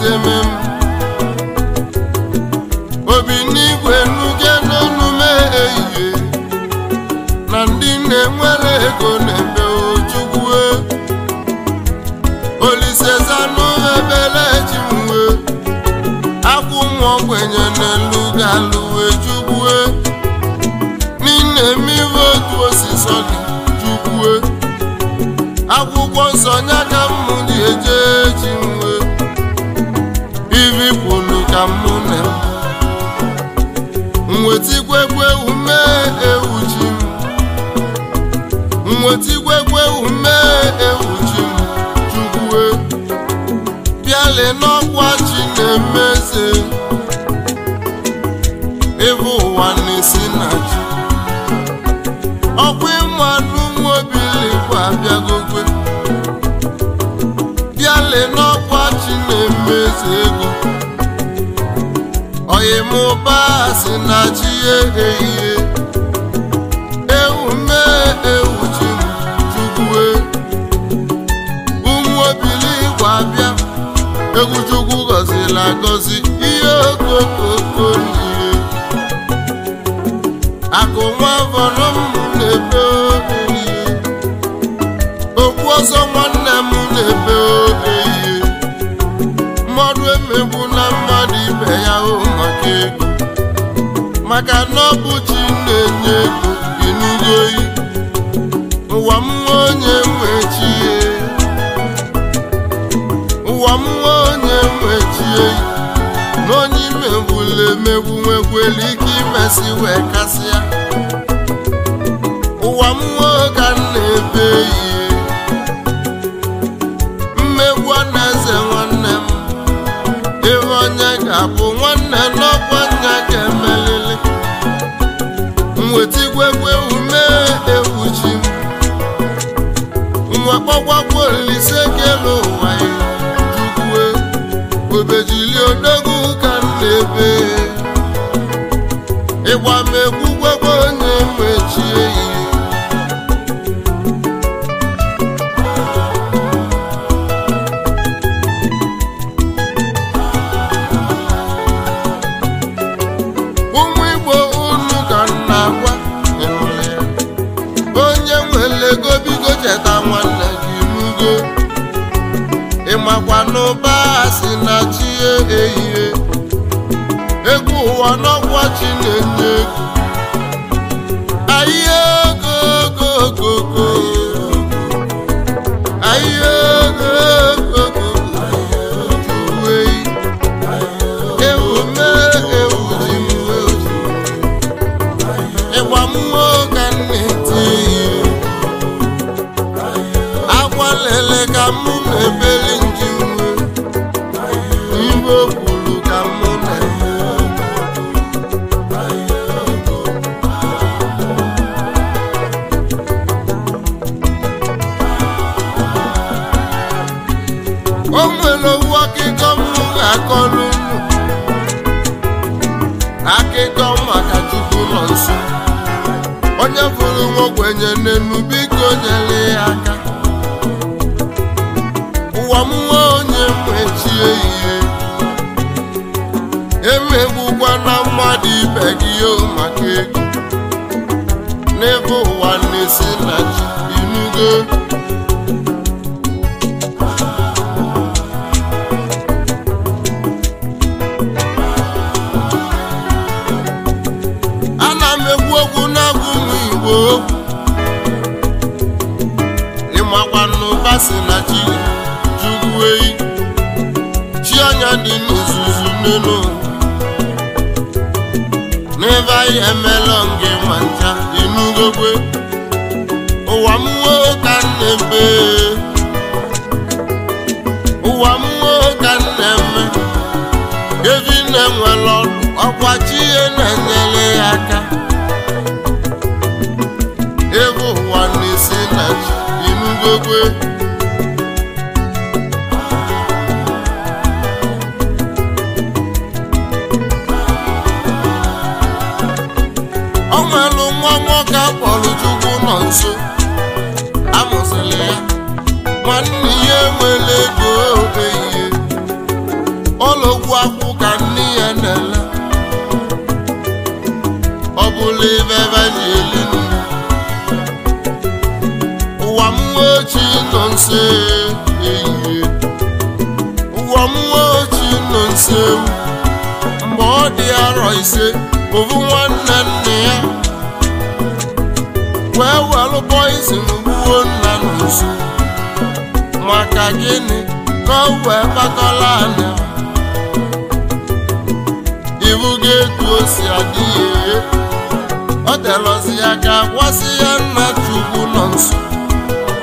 si eme m obi n'igwe nuge n'ọnụme ehihie na ndị na-enwere ego na-eme ojugwue zanụ ebele ji mwe akwụ nwa ogbenye n'elu ga-alụwe jugwue n'ime mmiri otu osisi jugwue akwụkwọ nsọ nya ka m dị eje ji mwe na m ume ewu ji m ume ewu ji m chukwue bịale n'ọkwa chi na-emeze ịbụ ụwa na-esi na ji ọkwa ịmanụ nwobilikwa abịagokwe bịale n'ọkwa chi na-emeze ego ịmụba si na chi ehihie ewume mee ewu ji chukwue ụmụ obili gwa bịa egwu chukwu gọzila agọzi ihe okokoko n'ihe akụ nwa vọrọ m na-ebe okwu ọzọ nwanne m na-ebe ihe mmadụ emegbu na mmadụ ibe ya o maka na ọ bụ chi na-enye ego ịnụgo ụwa m nwa onye nwe chi e. ụwa m nwa onye nwe chi eyi na onye ime emegbu ike imesi wee kasịa ụwa m nwa na-ebe ihe. iwe kpọgwakwuo Olise Kelu ịmakwa n'ụba si na chi ehihie egwu ụwa n'ọgwa chi na-enye egwu ahịa ogogogogo ahịa uwe ihe agwa ka egwukwa na mmadụ ibe gị maka ego n'ebe ụwa na-esi na ji inugo ana m ekwu okwu n'agụ m igbo ịmakwanụ basi na chi jugueyi chi anya dị n'ozuzu n'elu n'ebe anyị emelọ nke mancha enugokwe ụwa m nwoke na-eme ụwa m nwoke na-eme evinne nwere ọdụ ọkwa chi ihe na-enyere ya aka ebe ụwa na-esi na chi enugokwe amụsụ amụsịla ya nwanne ya enwere ego obe ihe ọlọgwu akwụ ka nne ya na-ele ọ bụla ebe ebe ji eli ụwa m ochi nọ nso ehihie ụwa m ochi nọ nso mgbe ọ dị arọ ise ovu nwanne nne ya wee welụ poizin gbuo nna n'uzu maka gịnị ka o wee kpakọla anya iwu gị etu osi si adị ya ọ telọzi ya ka gwasị ya nna chukwu nọ nso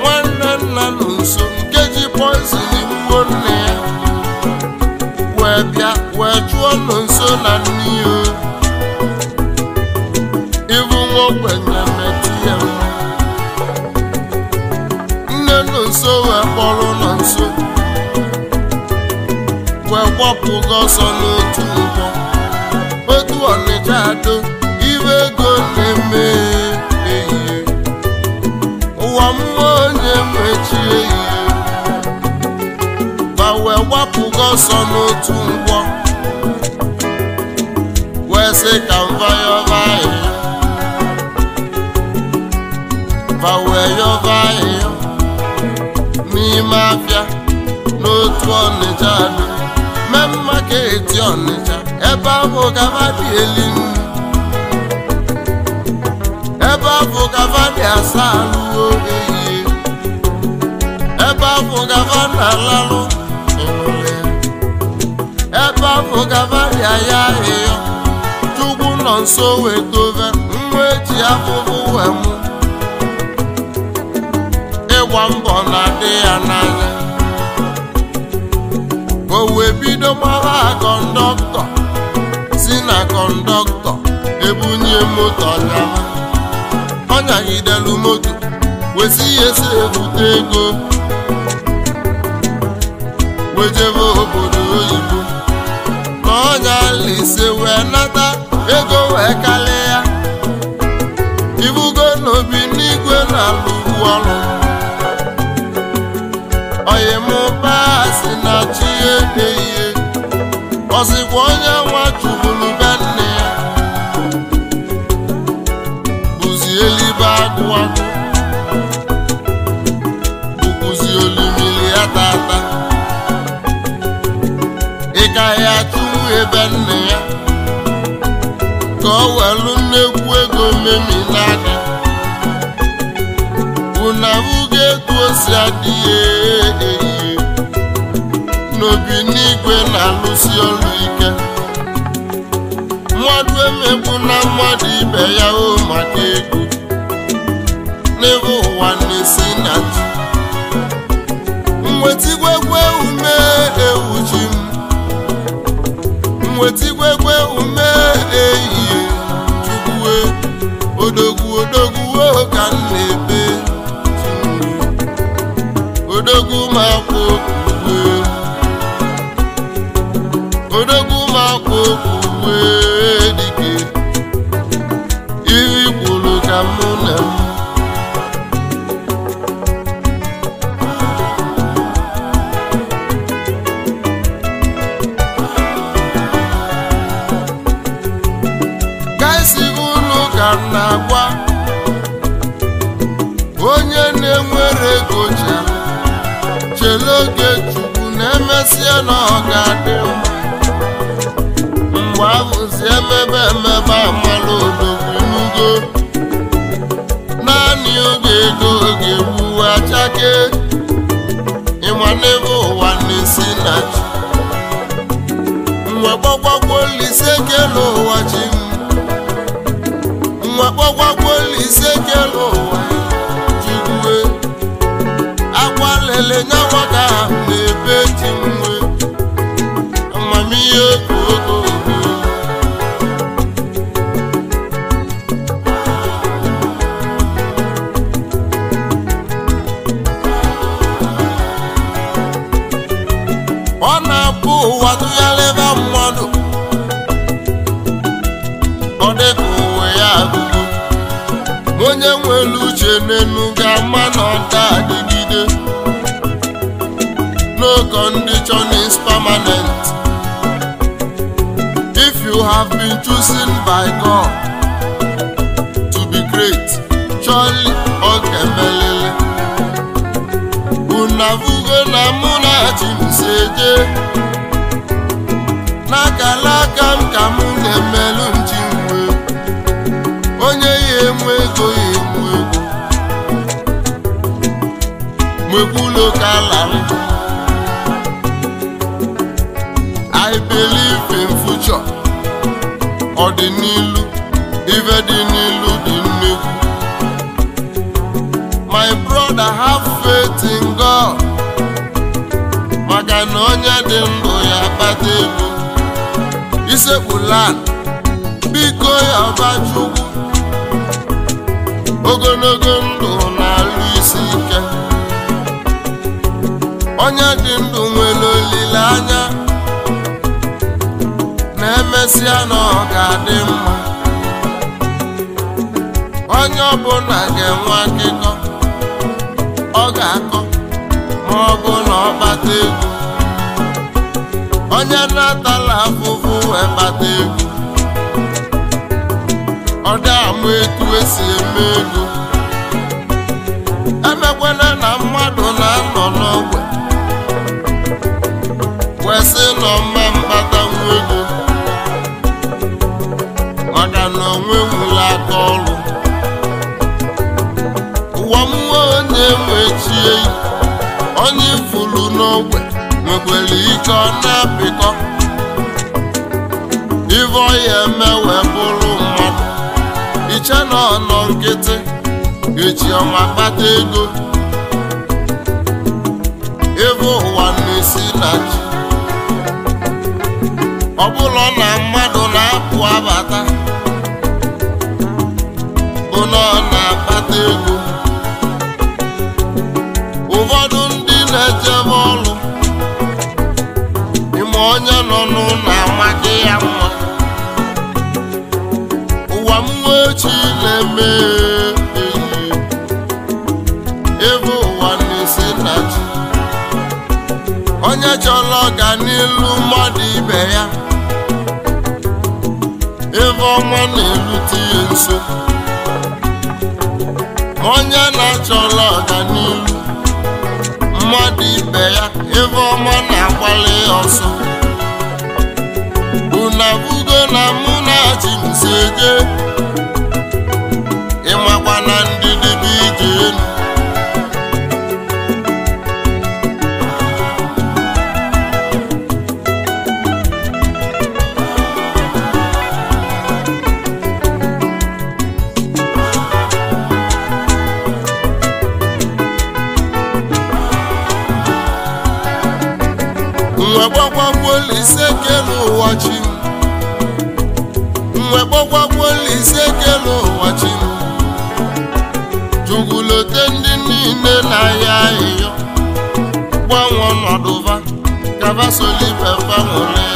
nwanne nna nọ nso nke ji poizin gbuo nna ya wee bịa wee chụ ọkwụgo ọsọ n'otu ụgbọ otu ọnịcha ado iwe ego na-eme ehihie ụwa mmụọ onye mechi ehihie ma wee gbapụgo ọsọ n'otu ụgbọ wee sị ka mva yọba ahịhịa mva wee yọba ahịhịa n'ime afịa n'otu ọnịcha steeti Ọnịcha ebe ahụ dị elinu ebe ahụ dị asaa n'uwe ehihie ebe ahụ gavadị alalụ ụmụle ebe ahụ dị aya ahịhịa chukwu nọ nso wetove nwa eji afụfụ wee mụ ịgba mbọ na-adị ya n'anya ka o wee bido gbara kọndọktọ si na kọndọktọ ebunye moto dara ọ nyagidelu moto wezi ihe si ebute ego wejebe obodo oyibo na ọnya lise wee nata ego wee kali ya ibugo n'obi n'igwe na alụ ọrụ oyimụba si na ọzikwa onye nwa tuburu be nne ya bụzi elibe agụwa agụ olumili ya tata ịka ya tụrụ ebe nne ya ka ọ welu nnekwu ego memi n'aka na etu o si adịghị n'obi n'igwe na-alụsi ọlụ ike mmadụ emegbu na mmadụ ibe ya o maka ego n'ebe ụwa na-esi na ji mwetigwegwe ume ewuji m mwetigwegwe ume ehihie tukwuwe odogwu odogwu ka m na-ebe e, odogwu ma kwụ odogwu ma akwa okwu wee ma ife amala odogwunugo naanị oge ego oge gbuwe achake ịma n'ebe ụwa na-esi na nwa gbagbakwo Olise ke n'ụwa chi You have been chosen by God to be great. Charlie Okemelele. Unavugo na mụ na Chimseje. N'akala aka m ka mụ na-emelụ nji nwe. Onye ya enwe ego ya enwe ego. Mwekwulo I believe in future. ọdịnilu ife dị n'ilu dị nnukwu my brother have faith in God maka na onye dị ndụ ya kpata ise isekpulan biko ya ọbachukwu ogologo ndụ na-alụ isi ike onye dị ndụ emesịa na ọ ga-adị mma onye ọbụla ga-enwe akịkọ ọ ga-akọ ma ọ bụ na ọ bata egwu onye na-atala afụfụ wee kpata egwu ọ dị ama etu esi eme ego emekwela na mmadụ na-anọ n'ogwe wee nọ mma mkpata agụla ọrụ ụwa mmụọ onye wechie onye n'ogbe ike ọ na-apịkọ ive bụrụ mmadụ iche na nkịtị eji ọma kpata ego ebe ụwa na-esi na ji ọ bụla na mmadụ na-apụ abata Ọ na-akpata ego ụfọdụ ndị na-ejebe ọrụ ime onye nọ n'ụlọ amaghị ya mma ụwa m nwechi na-eme ebe ụwa na-esi na ji onye chọrọ n'elu mmadụ ibe ya ebe ọnwa na-erute ya nso onye na-achọla ọganihu mmadụ ibe ya ebe ọma na-agbali ọsọ unabugo na mụ na ji mseje ịmakwa na ndị gbakwolise kele ụwa chi mwe gbakwolise ụwa jugulote ndị niile na-aya ahịhịa gbanwe ọnọdụva kabasolipefanwụle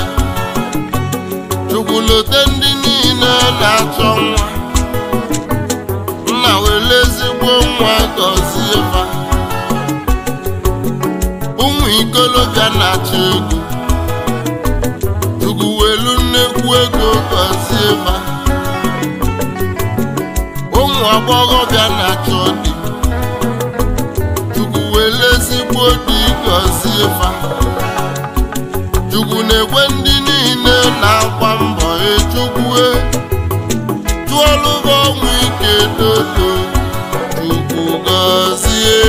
jugulote ndị niile na-achọ nwa nna were ezigbo nwa gọzie fa ụmụ ikolobịa na-achọ ego mma ụmụ bịa na-achọ dị chukwu were ezigbo dị gọzie fa chukwu na-ekwe ndị niile na-agba mbọ echukwue tụọlụ ọnwụ ike dodo chukwu gọzie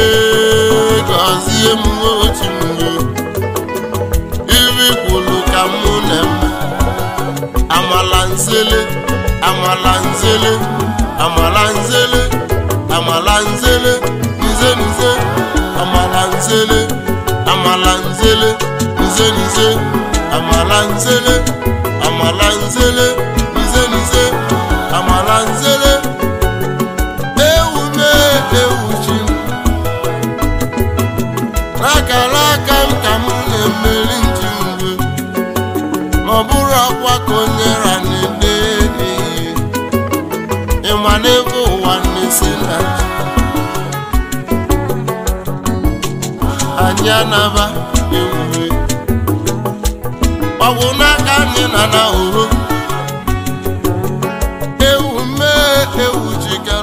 gọzie m amala nzele amala nzele amala nzele nze nze amala nzele amala nzele nze nze amala nzele amala nzele nze nze amala nzele anyị anaba ewuwe ọgwụ n'aka anyị na na ewu mee ewu jikere